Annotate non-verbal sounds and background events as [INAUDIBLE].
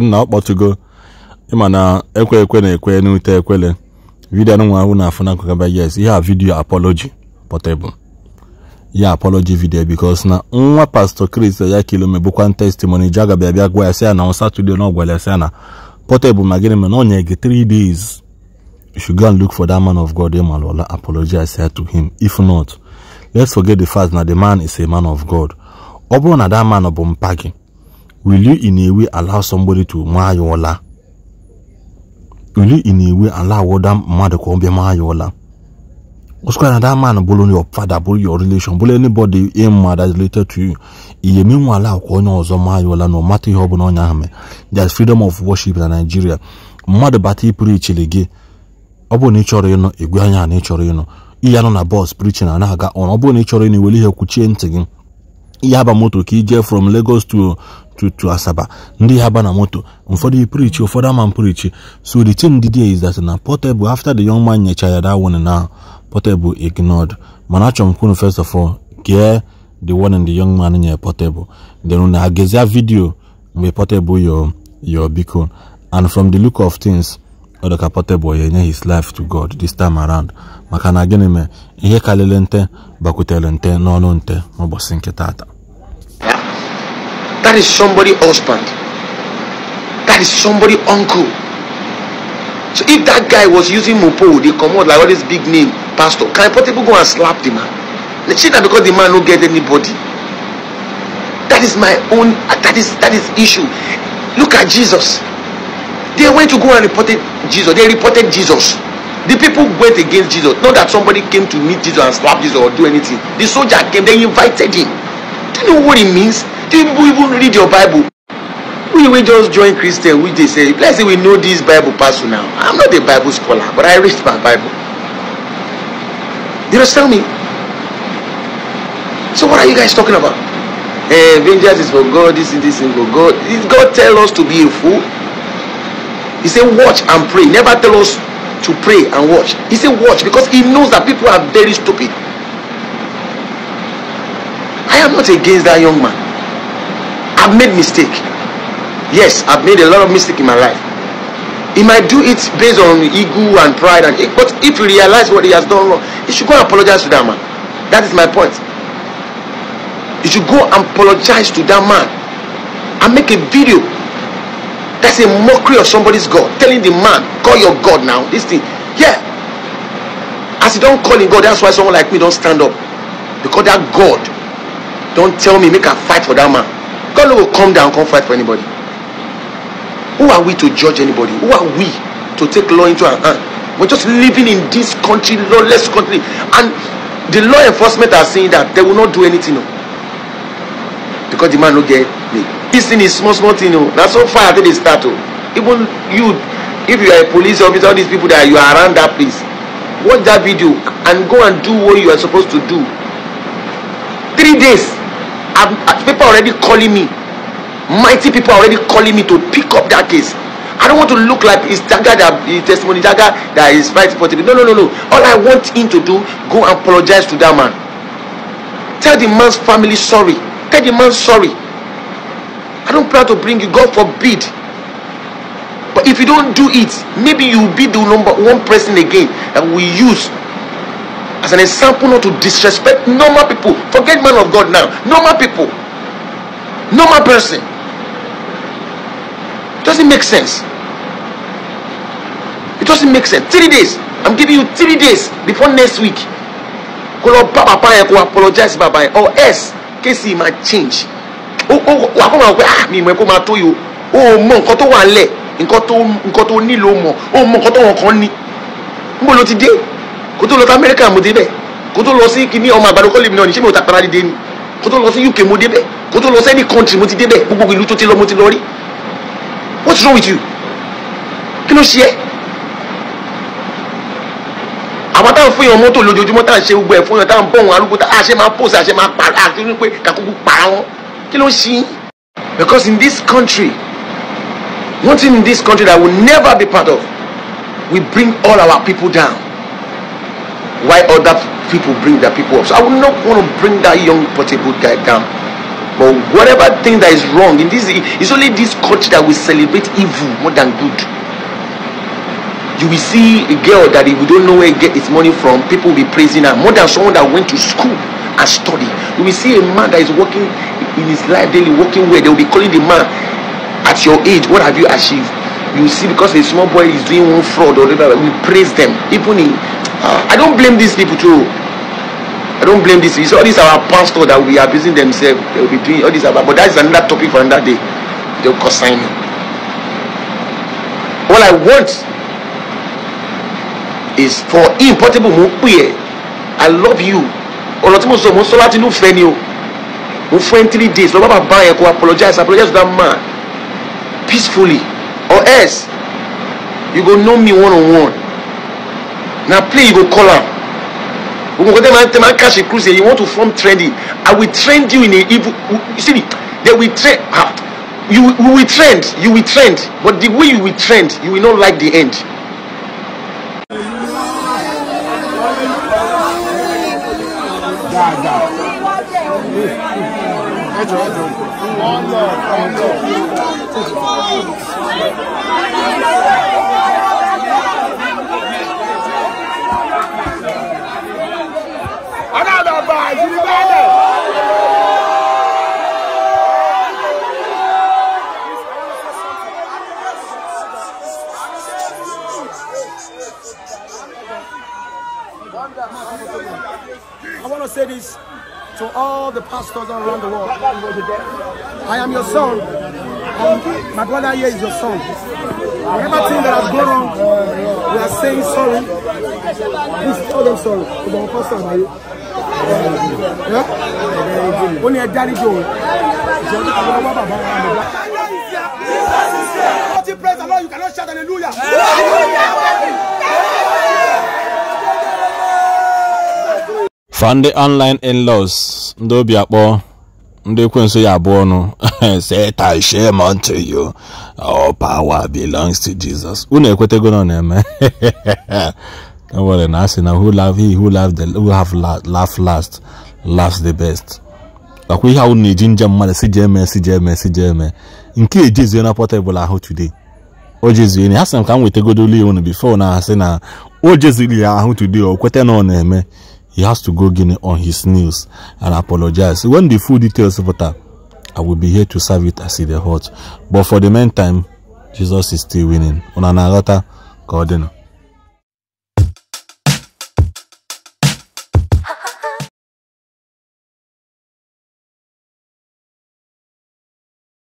nna [LAUGHS] ọ kpọtụgo ịma na ekwe ekwe na ekwe n'ute ekwele vidiyo anụnwa ahụ na afụ yes ihe a vidiyo apology portable ihe apology video bikos na nwa pastọ Chris ya kilome bụkwa testimony ji aga bịa bịa gwa ya sị ya na Saturday na ọgwara ya sị ya na portable ma gịnị mere na ọ gị 3 days you should go and look for that man of God i apologize to him if not let's forget the fact na the man is a man of God ọ bụrụ na that man bụ mpa gị will you in a way allow somebody to maa ya ụla will you in a way allow mmadụ ka ọ na that man bụrụ your father bụrụ your relation bụrụ anybody in ma is related to you ihe nwa ala akwa onye ọzọ maa ya ụla na ọmata ihe ọbụla onye ahụ there is freedom of worship na Nigeria mmadụ bata ịpụrụ chile gị ọ bụrụ na ị ịnụ igwe anya na ị ịnụ ihe na bọs prichin na na-aga ọrụ ọ ịnụ iwere ihe yaba moto ka ije from Lagos to to to Asaba ndị yaba na moto ụfọdụ prichi ụfọdụ ama prichi so the thing dị is that na Portable after the young man nyecha ya that one na Portable ignored mana achọ m kwunu first of all gee the warning the young man nye Portable then na agezia video mgbe Portable yo yo biko and from the look of things ọdọka Portable ya enye his life to God this time around maka na gịnị mee ihe karịrị nte bakwutere nte n'ọnụ nte n'ụbọchị nke taata. That is somebody husband. That is somebody uncle. So if that guy was using Mopo, they come out like all this big name, pastor. Can people go and slap the man? They see that because the man don't get anybody. That is my own, that is that is issue. Look at Jesus. They went to go and reported Jesus. They reported Jesus. The people went against Jesus. Not that somebody came to meet Jesus and slap Jesus or do anything. The soldier came, they invited him you know what it means? Do people even read your Bible? We will just join Christian, which they say, let's say we know this Bible passage now. I'm not a Bible scholar, but I read my Bible. You tell me? So what are you guys talking about? Eh, vengeance is for God, this is this is for God. Did God tell us to be a fool? He said, watch and pray. Never tell us to pray and watch. He said, watch because he knows that people are very stupid. I am not against that young man. I've made mistake. Yes, I've made a lot of mistake in my life. He might do it based on ego and pride, and but if you realize what he has done wrong, you should go and apologize to that man. That is my point. You should go and apologize to that man and make a video. That's a mockery of somebody's God. Telling the man, call your God now. This thing. Yeah. As you don't call in God, that's why someone like me don't stand up. Because that God don't tell me make a fight for that man god will come down come fight for anybody who are we to judge anybody who are we to take law into our hand we're just living in this country lawless country and the law enforcement are saying that they will not do anything no because the man will get me this thing is small small thing o na so far i they start o oh. even you if you are a police officer all these people that you are around that place watch that video and go and do what you are supposed to do three days uh, people already calling me. Mighty people are already calling me to pick up that case. I don't want to look like that guy that his testimony guy that is right for today. No, no, no, no. All I want him to do, go and apologize to that man. Tell the man's family sorry. Tell the man sorry. I don't plan to bring you, God forbid. But if you don't do it, maybe you'll be the number one person again that we use as an example not to disrespect normal people forget man of God now normal people normal person it doesn't make sense it doesn't make sense three days I'm giving you three days before next week kó lọ bá bàbá yẹn apologize bàbá yẹn or else kéésì máa change ó ó wà kó máa wẹ ah mi ìmọ̀ ẹ̀ kó máa tó yìí o ó mọ nǹkan tó wà ń lẹ̀ nǹkan tó nǹkan tó Mo mọ̀ ó mọ nǹkan wọn kàn ní níbo ti de kó tó lọ sí amẹ́ríkà mo débẹ̀ kó tó lọ sí kíní ọmọ àgbàdo kọ́lé náà ní ṣé mi ò tapara dìde ni kó tó lọ sí uk mo débẹ̀ kó tó lọ sí any country mo ti débẹ̀ gbogbo ìlú tó ti lọ mo ti lọ rí what's wrong with you kí ló ṣe é àwọn táwọn fún yàn mọ́tò lójoojúmọ́ táwọn ṣe gbogbo ẹ̀ fún yàn táwọn bọ̀ arúgbó táwọn àṣẹ máa pòsè àṣẹ máa pa àti wípé kàkókò para wọn kí ló ṣe é because in this country one thing in this country that I will never be part of we bring all our people down. why other people bring their people up. So I would not want to bring that young portable guy down. But whatever thing that is wrong in this, it's only this culture that will celebrate evil more than good. You will see a girl that we don't know where get its money from, people will be praising her more than someone that went to school and study. You will see a man that is working in his life daily, working where they will be calling the man at your age, what have you achieved? You see, because a small boy is doing one fraud or whatever, we praise them. Even in I don't blame these people too. I don't blame these. It's all these our pastor that will be abusing themselves. They will be doing all this about. But that is another topic for another day. They'll consign me. All I want is for impossible portable I love you. Ọ̀rọ̀ tí mo sọ mo ń sọ three days. Lọ́ba buy. yẹn apologize apologize to that man peacefully or else you go know me one on one. Now play you go call am we go there, man tell man catch a cruise you want to form trending i will trend you in a evil you see me they will trend ah you we will trend you will trend but the way you will trend you will not like the end. dáadáa ẹ jọ ẹ jọ ọ̀n lọ ọ̀n families, to all the pastors around the world. I am your son. And my brother here is your son. Whatever thing that has gone wrong, we are saying sorry. Please tell them sorry. Ọmọ pastor na ye. Ó ní Only a daddy Ìjọba àwọn ọmọ bàbá wa lọ. Praise the Lord, you cannot shout hallelujah. hallelujah. ba ndị online in-laws ndị obi akpọ ndị ekwensu ya abụọ nụ [LAUGHS] satan shame unto you all power belongs to jesus unu ekwetego ọ na-eme [LAUGHS] e nwere na asị na who love he who love the have laugh last laugh the best nakwa ihe ahụ na-eji njem mmadụ si jee mee si jee mee nke ejezie na ahụ today o jezie ha sị m ka m wetagodolu na o ya ahụ today na ọ na he has to go Guinea on his knees and apologize. When the full details of that, I will be here to serve it as it is hot. But for the meantime, Jesus is still winning. On another, God,